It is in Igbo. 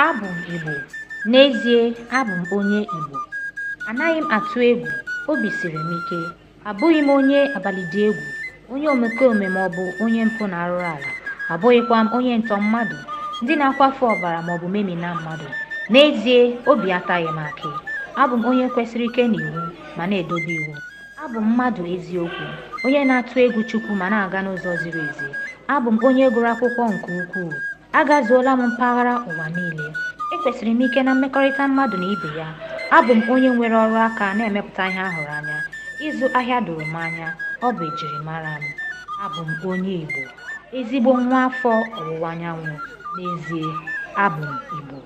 abụ m Igbo n'ezie abụ m onye Igbo anaghị m atụ egwu obi siri m ike abụghị m onye abalịdị egwu onye omekome ma ọ bụ onye mpụ na-arụrụ ala abụghịkwa m onye ntọ mmadụ ndị na-akwafu ọbara maọbụ memina mmadụ n'ezie obi ataghị m akị abụ m onye kwesịrị ike n'iwu ma na-edobe iwu abụ m mmadụ eziokwu onye na-atụ egwu Chukwu ma na-aga n'ụzọ ziri ezi abụ m onye gụrụ akwụkwọ nke ukwuu agazuola m mpaghara ụwa niile ekwesịrị m ike na mmekọrịta mmadụ na ibe ya abụ m onye nwere ọrụ aka na-emepụta ihe ahụrụ anya ịzụ ahịa doro m anya ọ bụ mara m abụ m onye Igbo ezigbo nwa afọ ọwụwa anyanwụ n'ezie abụ m Igbo